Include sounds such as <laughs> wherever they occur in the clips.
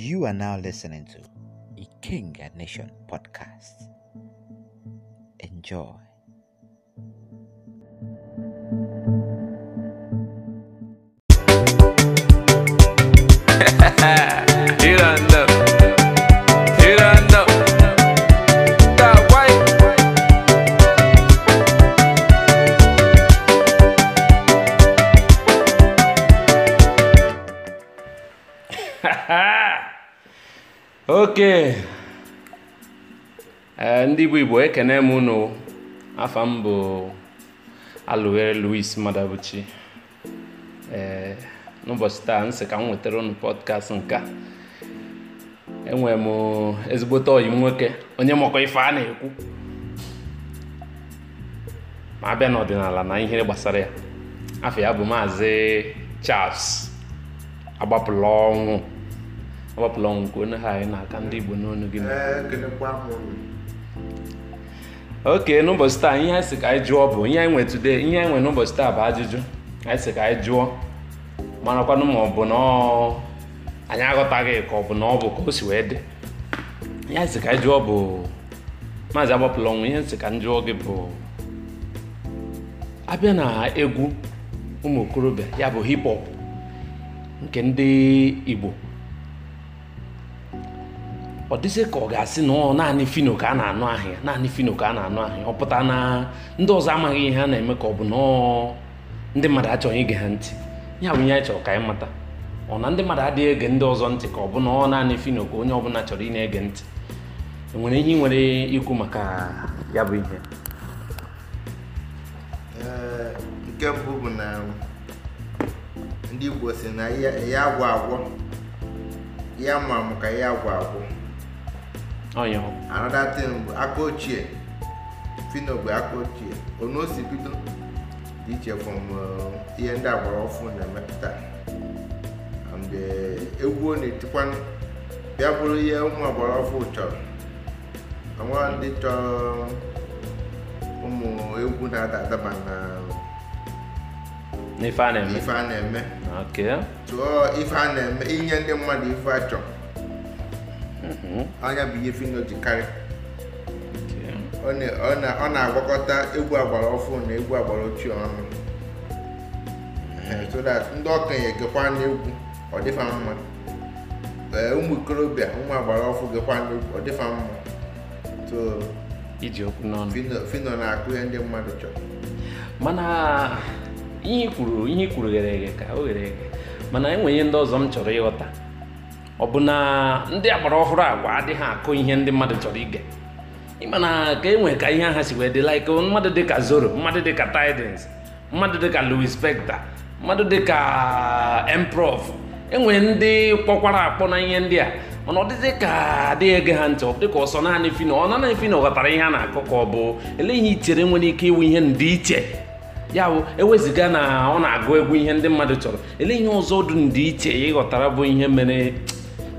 You are now listening to the King and Nation podcast. Enjoy. Eh, ndị igbo igbo ekene m unu afọ m bụ alụwere louis madabuchi eh, n'ụbọchị taa nsị ka m nwetara unu pọdkast nke a enwere m ezigbote ọyị nwoke onye makọ ife a na-ekwu ma abịa n'ọdịnala na ihe gbasara ya afọ ya bụ maazị Charles agbapụla ọnwụ agbapụla ọnwụ nke onye ha anyị na-aka ndị igbo n'ọnụ gị eh, oke n'ụbọchị taa ihe anyị sị ka anyị jụọ bụ ihe anyị nwe today ihe anyị nwe n'ụbọchị taa bụ ajụjụ anyị ka anyị jụọ marakwanụ ma ọ bụ na anyị aghọtaghị ka ọ bụ na ọ bụ ka o si wee dị ihe anyị ka anyị jụọ bụ maazị agbapụla ọnwụ ihe nsị ka m jụọ gị bụ abịa na egwu ụmụ okorobịa ya bụ hip hop nke ndị Igbo ọ dịzị ka ọ ga-asị na ọ naanị fino ka a na-anụ ahịa naanị fino ka a na-anụ ahịa ọ pụta na ndị ọzọ amaghị ihe a na-eme ka ọ bụ na ndị mmadụ achọghị ige ha ntị ya bụ ihe anyị chọrọ ka anyị mata ọ na ndị mmadụ adịghị ege ndị ọzọ ntị ka ọ bụ na ọ naanị fino ka onye ọbụla chọrọ ị na-ege ntị enwere ihe ị nwere ikwu maka ya bụ ihe nke mbụ bụ na ndị Igbo si na ya agwọ agwọ ya ma amụ ka ya agwọ agwọ another thing bụ aka ochie fino bụ aka ochie onu o si bido dị iche from uh, ihe ndị agbara ọfụ na-emepụta and uh, egwu ọ na-etikwa bịa bụrụ ihe ụmụ agbara ọfụ chọrọ onwere ndị chọrọ um, ụmụ egwu na-ada adaba na ife a na-eme tụọ ife a na-eme inye ndị mmadụ ife a Mm-hmm. anya bụ ihe Fino ji karị ọ na-agwakọta egwu agbara ọfụ na egwu agbara ochie ọnụ mm-hmm. so that ndị okenye gekwa n'egwu ọ dịfa mma ụmụ ikorobịa ụmụ agbara ọfụ gekwa n'egwu ọ dịfa mma iji okwu n'ọnụ Fino na-akụ ihe ndị mmadụ chọrọ mana ihe ikwuru ihe ikwuru ghere eghe ka o ghere eghe mana enwere ihe ndị ọzọ m chọrọ ịghọta ọ bụ na ndị agbara ọhụrụ agwa adịghị akụ ihe ndị mmadụ chọrọ ige ịma na ka e nwere ka ihe aha si wee dị like mmadụ dịka Zoro mmadụ dịka tidens mmadụ dịka Louis Spector mmadụ dịka Improv enwere ndị kpọkwara akpọ na ihe ndị a mana ọ dịdị ka adịghị ege ha ntị ọ dịka ọsọ naanị fino ọ naanị fino ghọtara ihe a na-akọ ka ọ bụ ele ihe ichere nwere ike iwu ihe ndị iche ya bụ eweziga na ọ na-agụ egwu ihe ndị mmadụ chọrọ ele ihe ọzọ dị ndị iche ịghọtara bụ ihe mere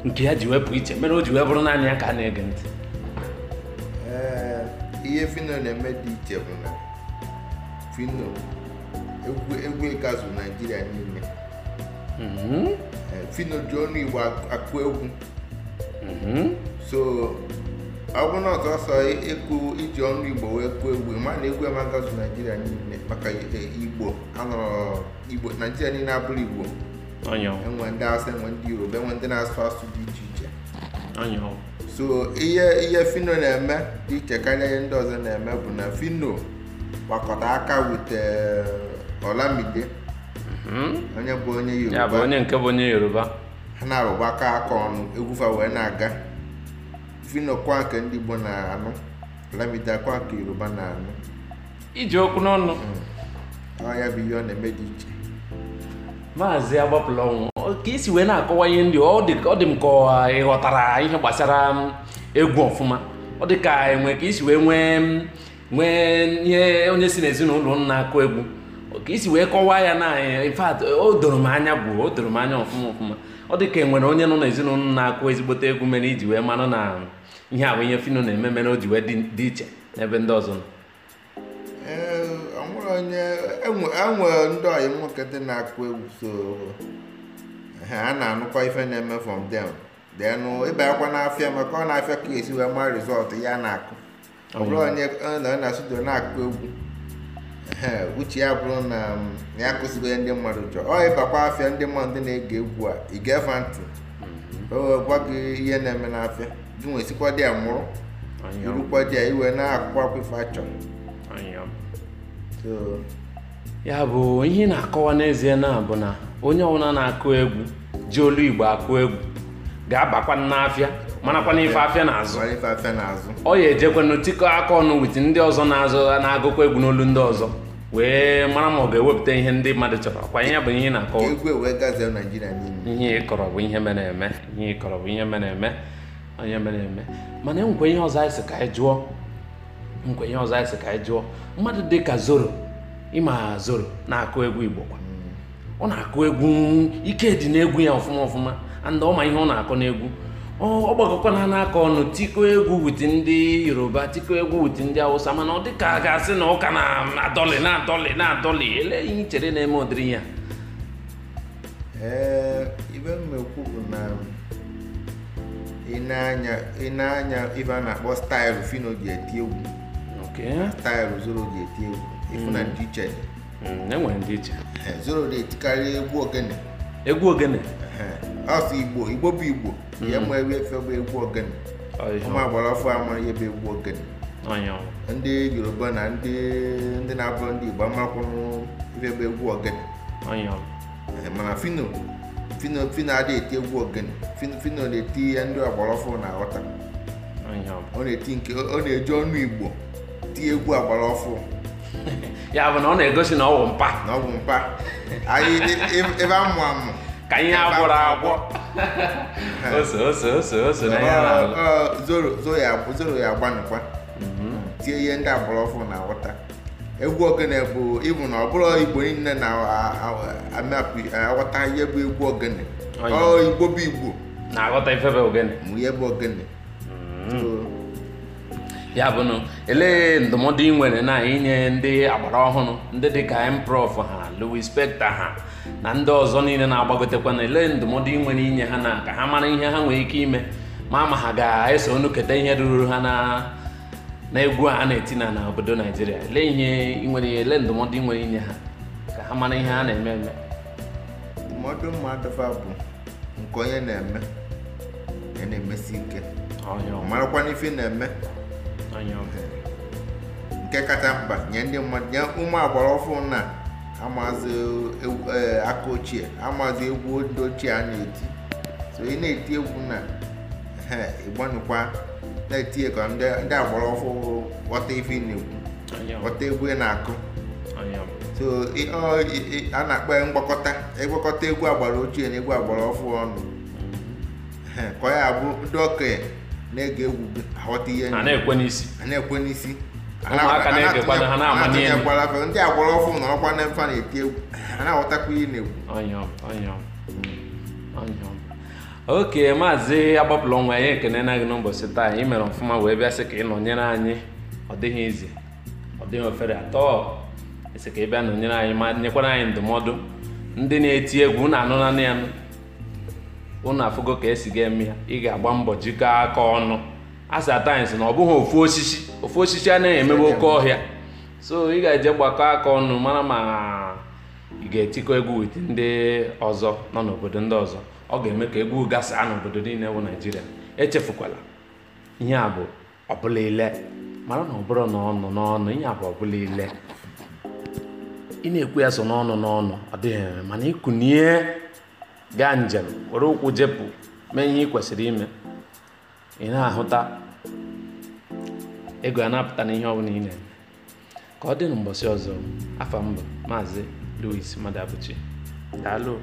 nke ya ji wepụ iche mere o ji wee bụrụ naanị ya ka a na-ege ntị ihe fino na-eme dị iche bụ na fino egwu ịkazụ naijiria niile mhm. fino ji ọnụ igbo akụ egwu mhm. so ọ bụrụ na ọsọsọ ịkụ iji ọnụ igbo wee kụọ egwu ma na egwu amagazụ naijiria niile maka e, igbo anọrọ igbo naijiria niile abụrụ igbo enwe ndị asị enwe ndị yoruba enwe ndị na-asụ asụ dị iche iche so ihe ihe fino na-eme dị iche karịa ihe ndị ọzọ na-eme bụ na fino gbakọta aka wute eh, olamide mm-hmm. onye bụ onye yoruba onye nke bụ onye yoruba ha na-arụgbakọ aka ọnụ egwufa wee na-aga fino kwa nke ndị igbo na-anụ olamide kwa nke yoruba na-anụ iji okwu n'ọnụ mm. ọ ya bụ ihe ọ na-eme dị iche maazị agbapụlọnwụ ka esi wee na-akọwa ihe ndị ọ dị m ka ị ghọtara ihe gbasara egwu ọfụma ọ dị ka enwe ka isi wee nwee nwee ihe onye si n'ezinụlọ m na-akụ egwu ka isi wee kọwaa ya na anyị in o doro m anya bụ o doro m anya ọfụma ọfụma ọ dị ka enwere onye nọ n'ezinụlọ na-akụ ezigbote egwu mere iji wee mara na ihe a ihe fino na-eme mere o ji wee dị iche n'ebe ndị ọzọ nọ onye enwere ndị ọyị nwoke dị na-akụ egwu so ha a na-anụkwa ife na-eme from them denụ ịba akwa n'afịa maka ọ na-afịa ka esi wee ma rizọtụ ya na-akụ ọ onye na studio na-akụ egwu uche ya bụrụ na ya akụzigoye ndị mmadụ chọọ ọ ịbakwa afịa ndị mmadụ na-ege egwu a ị ga-efa ntị mhm. gwa gị ihe na-eme n'afịa gị nwesikwa dị a mụrụ irukwa dị ya iwee na-akụkwa akwa ife achọrọ ya bụ ihe na-akọwa n'ezie na bụ na onye ọbụla na-akụ egwu ji olu igbo akụ egwu ga-abakwa n'afịa marakwana ife afịa na-azụ ọ ya ejekwanụ tikọ aka ọnụ wit ndị ọzọ na-azụ na-agụkwa egwu n'olu ndị ọzọ wee mara ma ọ ga-ewepụta ihe ndị mmadụ chọrọ kwa ihe bụ ihe na-akọwa e ihe ịkọrọ bụ ihe mere eme ihe ịkọrọ bụ ihe mere eme onye mere eme mana e ihe ọzọ anyị si ka anyị jụọ nkwa ihe ọzọ anyị sị ka anyị jụọ mmadụ dị ka zoro ịma zoro na-akụ egwu igbo kwa ọ na-akụ egwu ike dị n'egwu ya ọfụma ọfụma and ọma ihe ọ na-akụ n'egwu ọ gbakọkwana n'aka ọnụ tiko egwu wit ndị yoruba tikọ egwu wit ndị awụsa mana ọ dị ka a ga-asị na ụka na-adọlị na-adọlị na-adọlị ele ihe chere na-eme udiri ya ibe m na-ekwu bụ na ị na-anya ibe a na-akpọ staịlụ fino ji eti egwu taịlụ zoro ga-eti egwu ịfụ na ndị mm. iche mm, enwere ndị iche eh, zoro na-etikarị egwu ogene eh, mm. egwu ogene asụ igbo igbo bụ igbo ya ma ebe efe bụ egwu ogene ụmụ agbara afọ ama ebe bụ egwu ogene ndị yoruba na ndị ndị na abụ ndị igbo amakwụrụ ife bụ egwu ogene mana fino fino fino adịghị eti egwu ogene fino na-eti ya ndị agbara afọ na-aghọta ọ na-eji ọnụ igbo ti egwu agbara ọfụ <laughs> ya bụ na ọ na-egosi na ọ bụ mpa na ọ bụ mpa anyị ebe amụ amụ ka ihe agwụrụ agwọ <laughs> ose ose ose ose na ya zoro ya agbanụkwa mhm. tie ihe ndị agbara ọfụ na aghọta egwu ogene bụ ịbụ na ọ bụrụ igbo niile na-aghọta ihe bụ egwu ogene ọ igbo bụ igbo na-aghọta ife bụ ogene mụ ihe bụ ogene mhm. ya bụ elee ndụmọdụ ị nwere na inye ndị agbara ọhụrụ ndị dịka improv ha Louis Spector ha na ndị ọzọ niile na-agbagotekwa na elee ndụmọdụ ị nwere inye ha na ka ha mara ihe ha nwere ike ime ma ma ha ga-eso ọnụ keta ihe ruru ha na egwu a na-eti na na obodo Naijiria elee ihe ị nwere elee ndụmọdụ nwere inye ha ka ha mara ihe ha na-eme eme ndụmọdụ mmadụ bụ nke onye na-eme na-emesi ike marakwa n'ife na-eme nke kacha mkpa nye ndị mmadụ nye ụmụ agbara ọfụ na amazi e, aka ochie amazi egwu ndị ochie a na-eti so ị na-eti egwu na ịgbanụkwa na-etinye ka ndị agbara ọfụ ghọta ife na-egwu ghọta egwu ị na-akụ so a na-akpọ mgbakọta ịgwakọta egwu agbara ochie na egwu agbara ọfụ ọnụ ka ọ ya abụ ndị okenye na-ege egwu aghọta ihe na-ekwe n'isi atinyekwara afe ndị agwara ọfụ na ọkwa na mfa na-eti egwu ha na-aghọtakwa ihe na-egwu oke maazị agbapụla ọnwa anyị ekene na gị n'ụbọchị taa anyị mere ọfụma wee bịa sị ka ị nọnyere anyị ọ dịghị izi ọ dịghị ofere atọ esi ka ị bịa nọnyere anyị ma nyekwara anyị ndụmọdụ ndị na-eti egwu na anụ nanị anụ ụnụ afụgo ka esi ga-eme ya ị ga-agba mbọ jikọọ aka ọnụ asatines na ọ bụghị ofu osisi ofu osisi anaghị emebe oke ọhịa so ị ga-eje gbakọ aka ọnụ mara ma ị ga-etikọ egwu wit ndị ọzọ nọ n'obodo ndị ọzọ ọ ga-eme ka egwu gasaa n'obodo niile bụ naijiria echefukwala ihe a bụ ọbụla ile mara na ọ bụrụ n'ọnụ n'ọnụ ihe a bụ ọbụla ile ị na-ekwu ya so n'ọnụ n'ọnụ ọ dịghị mana ịkụnye gaa njem were ụkwụ jepụ mee ihe ị kwesịrị ime ị na-ahụta ego a na-apụta n'ihe ọ ị na-eme ka ọ dị n'ụbọchị ọzọ afọ mbụ maazị Louis Madabuchi daalụ